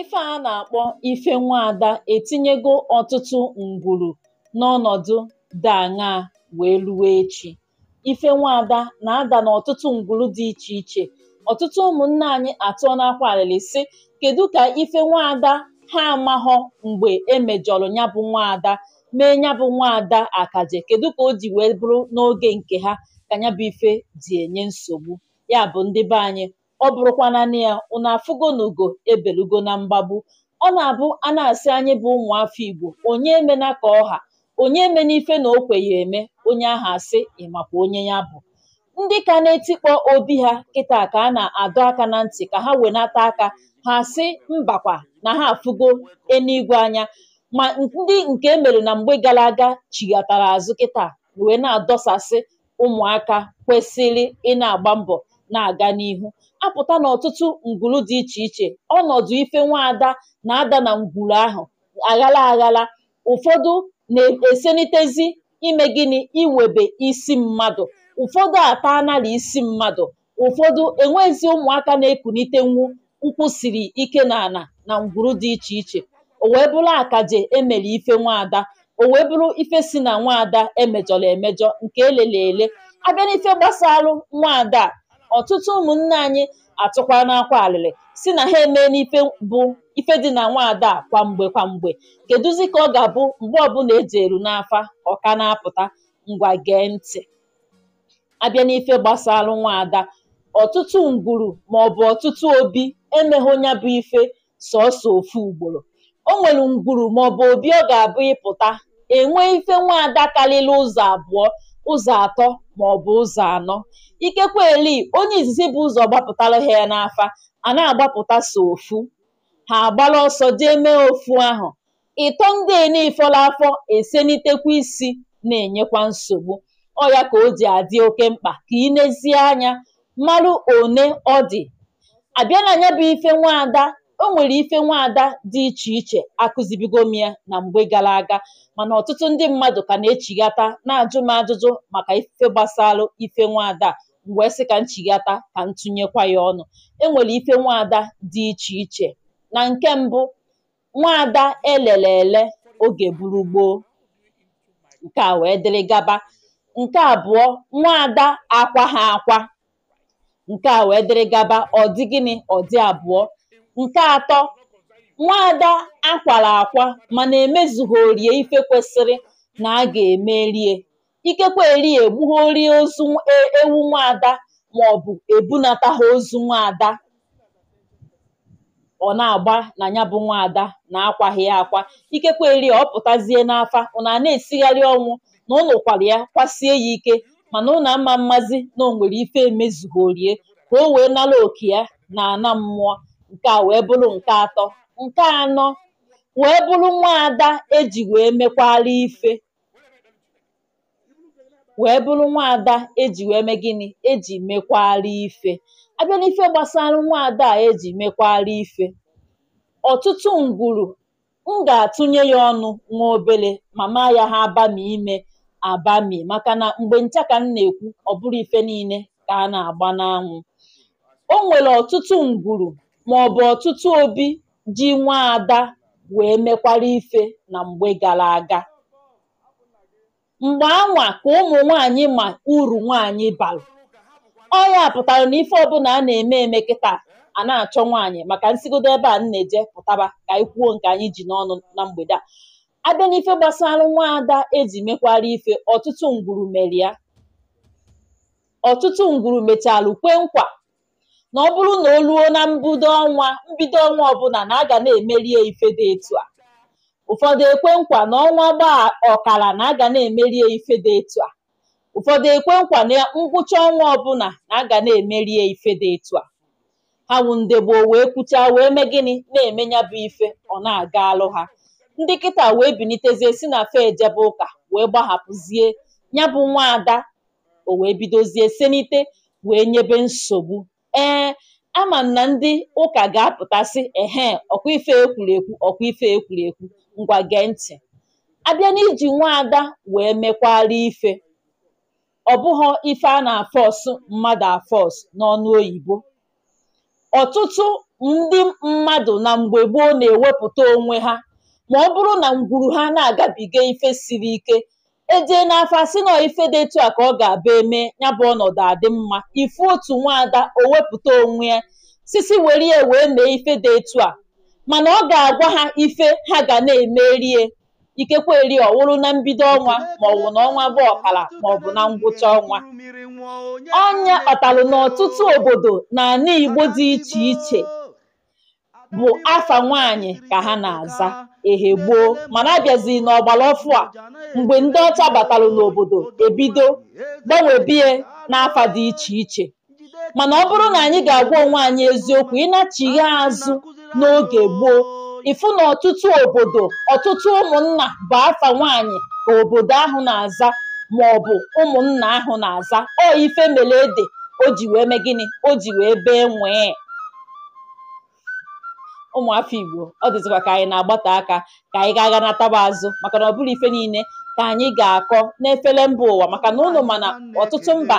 ife a na-akpọ ife nwaada etinyego ọtụtụ ngwuru n'ọnọdụ dị aṅaa wee ruwe echi ife nwaada na-ada n'ọtụtụ ngwuru dị iche iche ọtụtụ ụmụnne anyị atụọ n'akwa alịlị sị kedu ka ife nwaada ha amaghọ mgbe emejọrọ ya bụ nwaada mee ya bụ nwaada akaje kedu ka o ji wee bụrụ n'oge nke ha ka ya bụ ife di enye nsogbu ya bụ ndị be anyị ọ bụrụkwa nanị ya unu afụgo n'ugo ebelugo na mgbagbu ọ na-abụ a na-asị anyị bụ ụmụafọ igbo onye emena ka ọha onye emena ife na okwe eme onye ahụ asị ịmakwa onye ya bụ ndị ka na-etikpọ obi ha kịta ka a na-adọ aka na ntị ka ha wenata aka ha sị mbakwa na ha afụgo enuigwe anya ma ndị nke emere na mgbe gara aga chighatara azụ kịta wee na-adọsasị ụmụaka kwesịrị ị na-agba mbọ na-aga n'ihu apụta n'ọtụtụ ngwuru dị iche iche ọnọdụ ife nwaada na-ada na ngwuru ahụ aghala aghala ụfọdụ na-esenitezi ime gịnị iwebe isi mmadụ ụfọdụ ata anara isi mmadụ ụfọdụ enwezi ụmụaka na-ekunite nwu nkwụ siri ike na ana na ngwuru dị iche iche o wee bụrụ akaje emere ife nwaada o wee bụrụ ife si na nwaada emejọrọ emejọ nke elele ele abịa n'ife gbasalụ nwaada ọtụtụ ụmụnne anyị atụkwa n'akwa alịlị si na ha emee n'ife bụ ife dị na nwaada a kwamgbe kwamgbe kedụzi ka ọ ga-abụ mgbe ọbụla eji eru n'afa ọka na-apụta ngwa gee ntị abịa n'ife gbasarụ nwaada ọtụtụ ngwuru maọbụ ọtụtụ obi emeghị onye bụ ife sọsọ ofu ugboro o nwere ngwuru maọbụ obi ọ ga-abụ ịpụta enwee ife nwaada karịrị ụzọ abụọ ụzọ atọ ma ọ bụ ụzọ anọ ikekwe eli onye izizi bụ ụzọ gbapụtalụ ha n'afa a na-agbapụta so ofu ha agbala ọsọ jee mee ofu ahụ ịtọ ndị enifọla afọ esenitekwa isi na-enyekwa nsogbu ọ ya ka o ji adị oke mkpa ka ị nezie anya marụ one ọ dị abịa na bụ ife nwaada o nwere ife nwaada dị iche iche akụzibigo m ya na mgbe gara aga mana ọtụtụ ndị mmadụ ka na-echighata na-ajụ m ajụjụ maka ife gbasalụ ife nwaada a sị ka nchigata ka ntụnyekwa ya ọnụ e nwere ife nwaada dị iche iche, na nke mbụ nwaada elele ele oge buru gboo nke a wee dịrị gaba nke abụọ nwaada akwa ha akwa nke a wee dịrị gaba ọ dị gịnị ọ dị abụọ Nke atọ, nwaada ada akwara akwa mana orie ife kwesịrị na a ga-eme rie. Ikekwe erie egbughorie ozu e, ewu nwaada maọbụ ebunata ha ozu nwaada ọ na-agba na ya bụ nwaada na akwaghị ya akwa. Ikekwe erie ọ pụtazie n'afa ọ na na-esigharị ọnwụ na unu ya kwasie ya ike mana unu ama mmazi na o nwere ife orie ka o wee nara oke ya ana mmụọ. nke a wee bụrụ nke atọ nke anọ wee bụrụ nwaada eji wee mekwara ife wee bụrụ nwaada eji wee mee eji mekwara ife abịa gbasara nwaada a eji mekwara ife ọtụtụ ngwuru m ga-atụnye ya ọnụ nwa obere mama ya ha abami ime abami maka na mgbe ncha ka m na-ekwu ọ bụrụ ife niile ka a na-agba n'anwụ o nwere ọtụtụ ngwuru bụ ọtụtụ obi ji nwaada wee mekwara ife na mgbe gara aga mgbe anwa ka ụmụ nwanyị ma uru nwanyị bara ọ ya pụtara na ife ọbụla a na-eme eme kịta a na-achọ nwanyị maka nsigodo ebe a na-eje pụtaba ka anyị kwuo nke anyị ji n'ọnụ na mgbede a abịa n'ife gbasara nwaada eji mekwara ife ọtụtụ ngwuru mere ya ọtụtụ ngwuru mechalụ kwe nkwa na ọ bụrụ na o ruo na mbido ọnwa mbido ọnwa ọbụla na a ga na-emeri ya ife dị etu a ụfọdụ ekwe nkwa na ọnwa gbaa ọkara na a ga na-emeri ya ife dị etu a ụfọdụ ekwe nkwa na ngwụcha ọnwa ọbụla na ga na-emeri ya ife dị etu a ha wụ ndị gboo wee kwuchaa wee mee gịnị na ya bụ ife ọ na-aga alụ ha ndị kịta wee binitezie si na fe ejebe ụka wee gbahapụzie ya bụ nwaada o wee bidozie senite wee nyebe nsogbu ee ama na ndị ụka ga apụtasị sị ehee ọkwa ife ekwuru ekwu ọkwa ife ekwuru ekwu ngwa gee ntị abịa n'iji nwaada wee mekwara ife ọ bụghọ ife a na-afọsụ mmadụ afọọsụ n'ọnụ oyibo ọtụtụ ndị mmadụ na mgbe gboo na-ewepụta onwe ha ma ọ bụrụ na ngwuru ha na-agabiga ife siri ike ejee n'afa asị nọọ ife dị etu a ka ọ ga-abụ eme ya bụ ọnọdụ adị mma ife otu nwaada o wepụta onwe ya sisi were ya wee mee ife dị etu a mana ọ ga-agwa ha ife ha ga na-emerie ikekwe eri ọwụrụ na mbido ọnwa bụ na ọnwa bụ ọkara bụ na ngwụcha ọnwa ọnya ọtalu n'ọtụtụ obodo na ana Igbo dị iche iche bụ afa nwaanyị ka ha na-aza ehe gboo mana abịazi n'ọgbara ọfụ a mgbe ndị ọcha batalụ n'obodo ebido gbanwebie n'afa dị iche iche mana ọ bụrụ na anyị ga-agwa onwe anyị eziokwu ịnachighi azụ n'oge gboo ịfụ na ọtụtụ obodo ọtụtụ ụmụnna bụ afa nwaanyị ka obodo ahụ na-aza ma ọ bụ ụmụnna ahụ na-aza ọ ife mele ede o ji wee mee gịnị o ji wee bee nwee ụmụafọ igbo ọ dịzịkwa ka anyị na-agbata aka ka anyị ga-aga nataba azụ maka na ọ bụrụ ife niile ka anyị ga-akọ n'efere mba ụwa maka na ụnụ mana ọtụtụ mba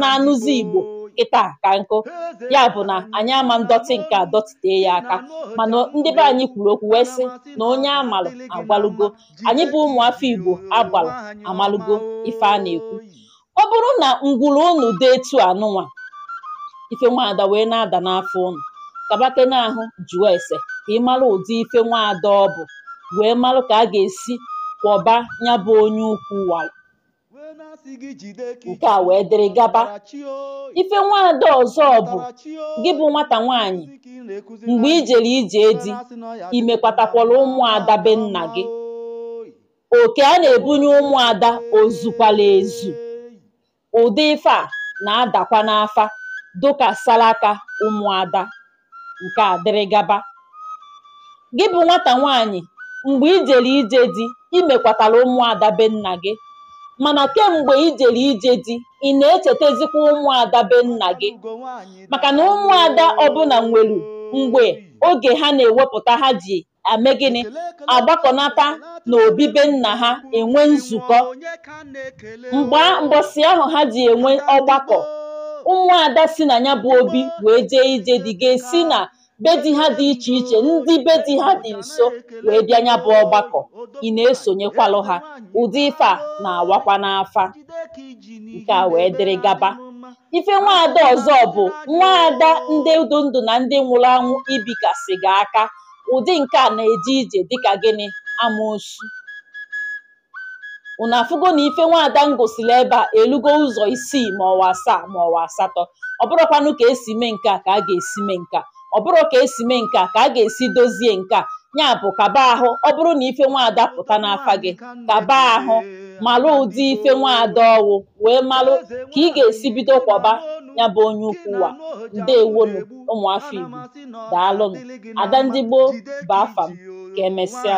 na-anụzi igbo kịta ka nkụ ya bụ na anyị ama ndọtị nke adọtite ya aka mana ndị be anyị kwuru okwu wee sị na onye amalụ agbalụgo anyị bụ ụmụafọ igbo agbalụ amalụgo ife a na-ekwu ọ bụrụ na ngwuru unu dị etu anụnwa ife nwaada wee na-ada n'afọ ụnụ. kaba na ahụ jụọ ese ka ị mara ụdị ife nwaada ọ bụ wee mara ka a ga-esi kwọba ya onye ukwu wara nke a wee dịrị gaba ife nwaada ọzọ bụ gị bụ nwata nwaanyị mgbe ijere ije di imekwatakwala ụmụada be nna gị oke a na-ebunye ụmụada ozukwala ezu ụdị ife a na-adakwa n'afa dụka salaka ụmụada Nke a dịrị gaba gị bụ nwata nwaanyị mgbe ijere ije di imekwatara ụmụada be nna gị mana kemgbe ijere ije di ị na-echètezikwa ụmụada be nna gị Maka na ụmụada ọbụla nwere mgbe oge ha na-ewepụta ha ji ame gịnị agbakọnata na obibe nna ha enwe nzukọ mbosi ahụ ha ji enwe ọgbakọ ada si na ya bụ obi wee jee ije dị ga-esi na be di ha dị iche iche ndị be di ha dị nso wee bịa ya bụ ọgbakọ ị na-esonyekwalụ ha ụdị ife a na-awakwa n'afa nke a wee dịrị gaba ife nwaada ọzọ bụ nwaada ndị ndụ ndụ na ndị nwụrụ anwụ ibikasị gị aka ụdị nke a na-eje ije dịka gịnị amoosu unu afụgo na ife nwaada m gosili ebe a elugo ụzọ isii ma ọwa asaa ma ọwa asatọ ọ bụrụkwanụ ka esi mee nke a ka a ga-esi mee nke a ọ bụrụ ka esi mee nke a ka a ga-esi dozie nke a ya bụ kaba ahụ ọ bụrụ na ife nwaada pụta n'afa gị kaba ahụ malụ ụdị ife nwaada ọwụ wee malụ ka ị ga-esi bido kwọba ya bụ onye ukwu wa ndewonu ụmụafọ Igbo daalụnụ ada ndị gboo bụ afam ka emesịa